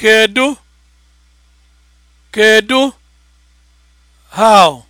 Kedu? Kedu? How?